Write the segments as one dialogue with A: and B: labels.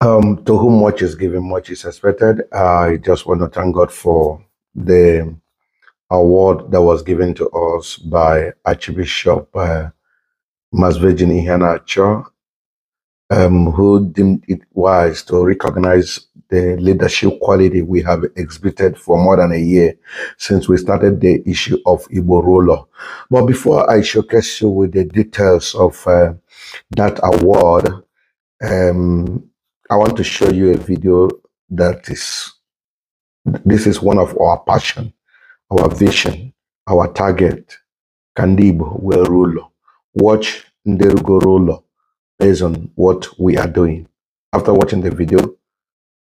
A: Um, to whom much is given, much is expected. I just want to thank God for the award that was given to us by Archbishop uh, Masvejin Ihanacho, um, who deemed it wise to recognize the leadership quality we have exhibited for more than a year since we started the issue of Igbo ruler. But before I showcase you with the details of uh, that award, um, I want to show you a video that is, this is one of our passion, our vision, our target, Kandibo Ruler, Watch Nderugo Rolo based on what we are doing. After watching the video,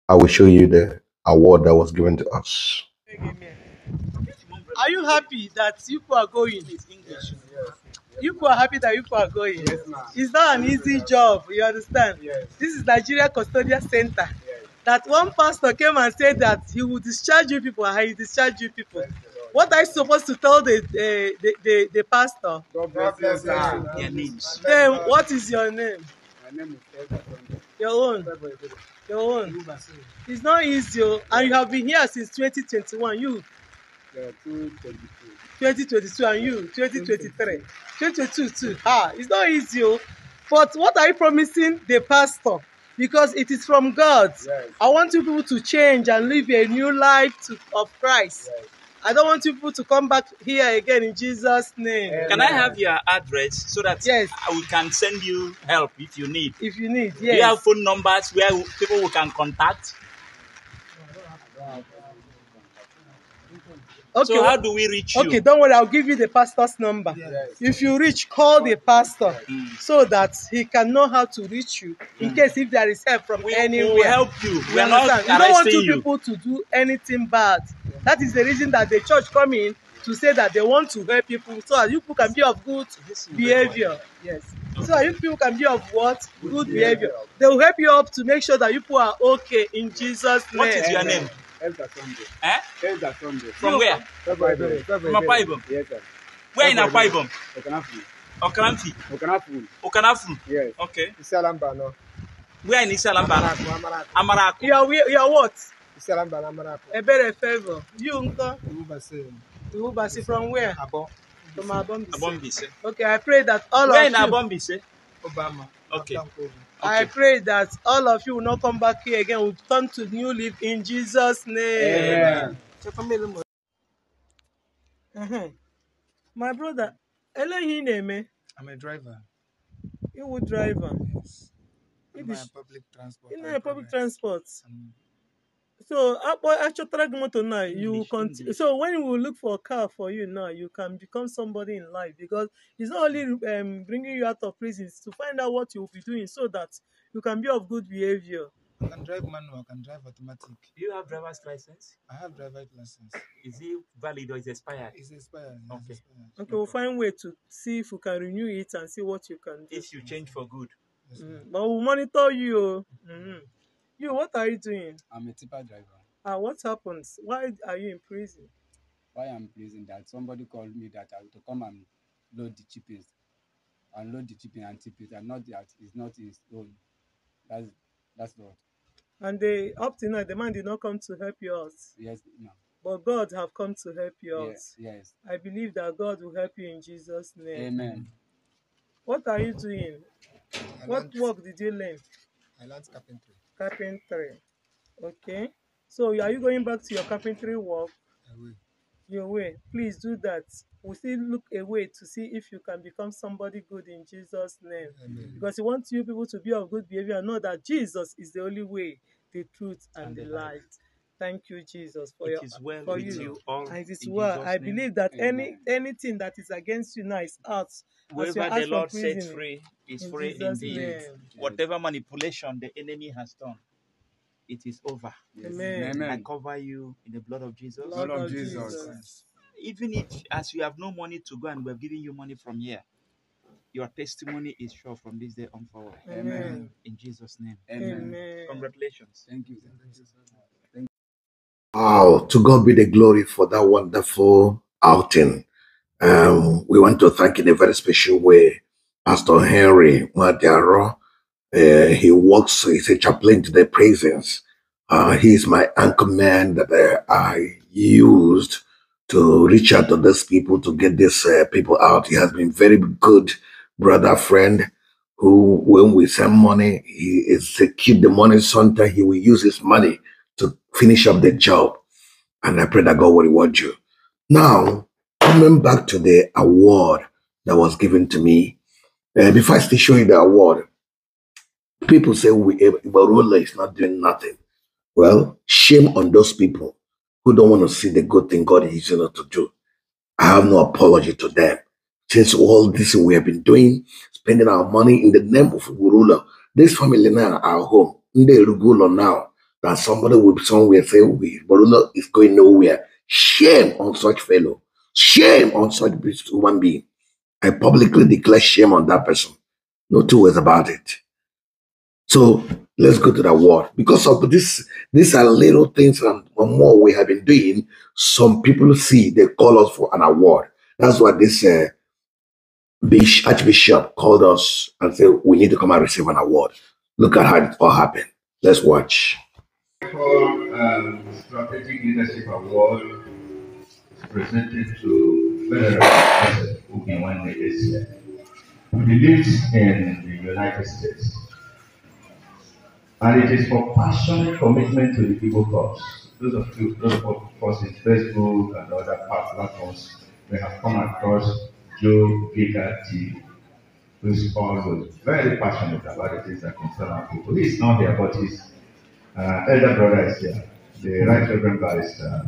A: I will show you the award that was given to us.
B: Are you happy that people are going? in English. Yes, yes. you people are happy that you people are going. Yes, ma'am. It's not an easy yes, job, you understand? Yes. This is Nigeria Custodial Center. Yes. That one pastor came and said that he will discharge you people, and he discharge you people. Yes, what are you supposed to tell the the uh, the, the, the pastor? God bless you, Their names. Then what is your name? My name is Your own. Your own. It's not easy, oh. and you have been here since 2021. You 2022. and you 2023 2022 too ah it's not easy oh. but what are you promising the pastor because it is from God yes. I want you people to change and live a new life to, of Christ yes. I don't want you people to come back here again in Jesus name. Can I have your address so that yes. we can send you help if you need? If you need, yes. have phone numbers where people we can contact? Okay. So how do we reach you? Okay, don't worry. I'll give you the pastor's number. Yes. If you reach, call the pastor mm. so that he can know how to reach you in mm. case if there is help from we, anywhere. We will help you. We are not You don't want two you. people to do anything bad. Yeah. That is the reason that the church come in to say that they want to help people so that you people can be of good behavior. Yes. So that you people can be of what? Good, behavior. behavior. They will help you up to make sure that you people are okay in Jesus' name. What is your name? Elder Sunday. Eh? From where? From Apaibom. Yes,
A: Where in Apaibom?
B: Okanafun. Okanafu. Okanafu. Okanafun. Yes. Okay. Isalamba, no. Where in Isalamba? Amaraku. Amaraku. You are, you are what? Isalamba, Amaraku. A better favor. You, Unko? Ubasi. Ubasi from where? Abo. From Abombise. Abombise. Okay, I pray that all of you. Where in Abombise? Obama. Okay. okay. I pray that all of you will not come back here again. We'll turn to new leaf in Jesus' name. Amen. My brother, Ellen, eléyìí name. I'm a driver. You a driver. Yes. In my
A: public transport. In my
B: public transport. Um, So you continue. So when we look for a car for you now, you can become somebody in life because it's not only um, bringing you out of prison, to find out what you'll be doing so that you can be of good behavior. I can drive manual, I can drive automatic. Do you have driver's license? I have driver's license. Is it valid or is it expired? It's expired. Yes, okay. Expired. Okay, we'll find way to see if we can renew it and see what you can do. If you change for good. Yes, mm. But we'll monitor you. Mm -hmm. You, what are you doing? I'm a tipper driver. And ah, what happens? Why are you in prison? Why I'm in prison? That somebody called me that I to come and load the chippings. and load the chipping and tip it, and not that it's not his own. That's that's what. And they up to now, the man did not come to help you out. Yes, no. But God have come to help you out. Yes, yes. I believe that God will help you in Jesus' name. Amen. What are you doing? I what learned, work did you learn? I learned carpentry. carpentry. Okay. So are you going back to your carpentry work? I will. You will. Please do that. We still look away to see if you can become somebody good in Jesus' name. Amen. Because He wants you people to be of good behavior and know that Jesus is the only way, the truth, and, and the, light. light. Thank you, Jesus, for it your is well for with you. you all. It is well. I believe that Amen. any anything that is against you now is out. Whatever the Lord sets free is in free Jesus indeed. Name. Whatever manipulation the enemy has done, it is over. Yes. Amen. Amen. I cover you in the blood of Jesus. Blood, blood of Jesus. Jesus. Even if, as you have no money to go and we're giving you money from here, your testimony is sure from this day on forward. Amen. In Jesus' name. Amen. Amen. Congratulations. Thank you. Thank
A: you Wow, to God be the glory for that wonderful outing. Um, we want to thank in a very special way Pastor Henry Madiaro. Uh, he works, he's a chaplain to the prisons. Uh, he's my anchor man that I used to reach out to these people to get these uh, people out. He has been very good brother friend who, when we send money, he execute the money. Sometimes he will use his money finish up the job. And I pray that God will reward you. Now, coming back to the award that was given to me, uh, before I still show you the award, people say we eh, Barula is not doing nothing. Well, shame on those people who don't want to see the good thing God is using us to do. I have no apology to them. Since all this we have been doing, spending our money in the name of Urula, this family now, our home, the Rugulo now, that somebody will somewhere say, we Borula is going nowhere. Shame on such fellow. Shame on such human being. I publicly declare shame on that person. No two ways about it. So let's go to the word. Because of this, these are little things and more we have been doing. Some people see they call us for an award. That's what this uh, Archbishop called us and said, we need to come and receive an award. Look at how it all happened. Let's watch. For um, Strategic Leadership Award presented to Federal President Ogunwanne this year, who lives in the United States. And it is for passionate commitment to the people cause. Those of you, those of us in Facebook and other platforms, may have come across Joe Baker who is also very passionate about the things that concern our people. He's not here, but he's Uh, elder brother is here, the Right Reverend Barrister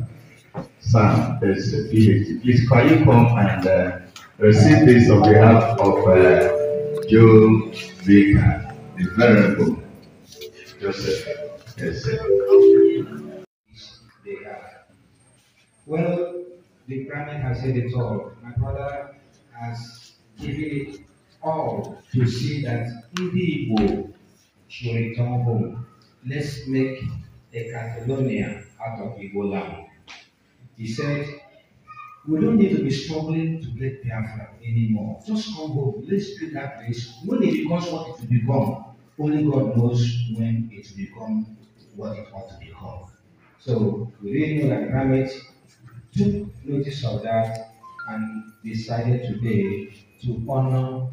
A: Sam is uh, Please, can you come and uh, receive this on behalf of uh, Joe Baker, the Venerable Joseph? Yes, Well, the Grammy has said it all. My brother has given it all to see that he will should return home let's make a Catalonia out of Ebola," He said, we don't need to be struggling to get Biafra anymore. Just come home. Let's build that place. When it becomes what it will become, only God knows when it will become what it ought to become. So we really know
B: that Ramit took notice of that and decided today
A: to honor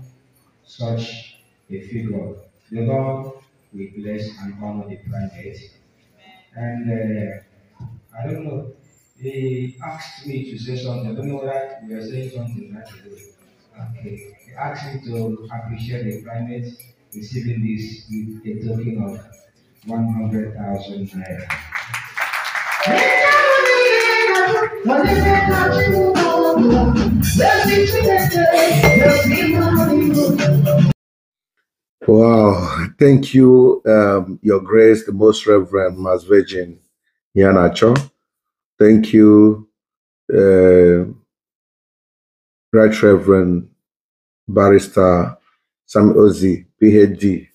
A: such a figure. The Lord we bless and honor the planet. And uh, I don't know, He asked me to say something. I don't know that we are saying something right away. Okay. he asked me to appreciate the planet receiving this with a token of 100,000 naira. Wow. Thank you, um, Your Grace, the Most Reverend Mass Virgin Yanacho. Thank you, uh, Right Reverend Barrister Sam Ozi, PhD,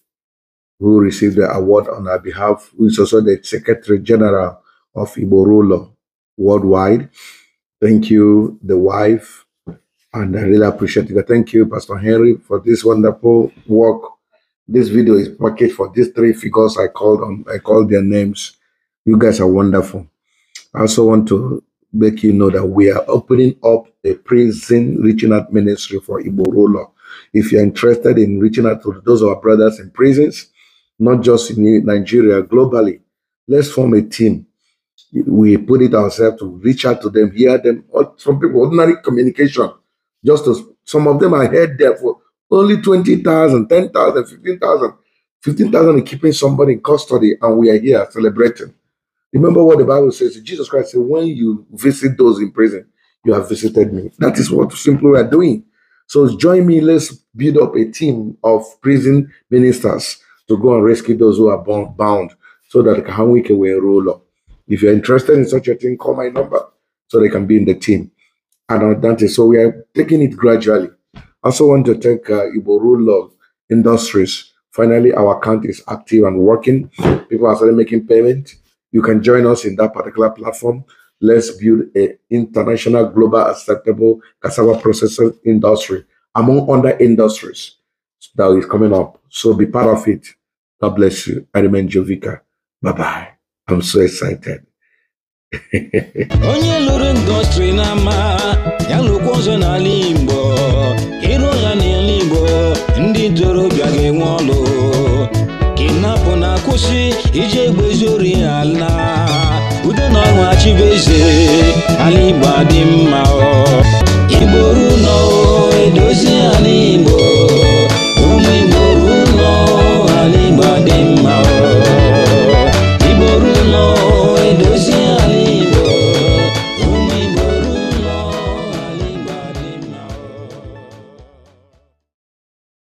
A: who received the award on our behalf, who is also the Secretary General of Iborulo worldwide. Thank you, the wife, and I really appreciate it. Thank you, Pastor Henry, for this wonderful work this video is packaged for these three figures I called on. I called their names. You guys are wonderful. I also want to make you know that we are opening up a prison reaching out ministry for Igbo If you're interested in reaching out to those of our brothers in prisons, not just in Nigeria, globally, let's form a team. We put it ourselves to reach out to them, hear them. Some people, ordinary communication, just to, some of them I heard there for only 20,000, 10,000, 15,000. 15,000 in keeping somebody in custody, and we are here celebrating. Remember what the Bible says Jesus Christ said, When you visit those in prison, you have visited me. That is what simply we are doing. So join me. Let's build up a team of prison ministers to go and rescue those who are bound so that we can roll up. If you're interested in such a thing, call my number so they can be in the team. And Dante, uh, so we are taking it gradually. I also want to thank uh, Iboru Log Industries. Finally, our account is active and working. People are starting making payment. You can join us in that particular platform. Let's build an international, global, acceptable cassava processing industry among other industries that is coming up. So be part of it. God bless you. I remain Jovica. Bye bye. I'm so excited. onye
B: lụrụ ndọstrị n'ama ama ya lụkwa ọzọ n'ala Igbo ịrụ na n'ala Igbo ndị ntorobịa ga-enwe ọlụ kinapụ na-akwụsị iji egbe ori ala udo na ọrụ achịbụ
A: eze ala Igbo adị mma